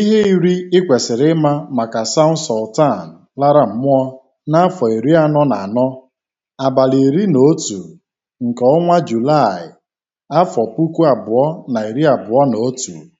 Ihe iri i kwesịrị ịma maka Saụnd Sultan lara mmụọ n'afọ iri anọ na anọ, abalị iri na otu nke ọnwa Julaị, afọ puku abụọ na iri abụọ na otu.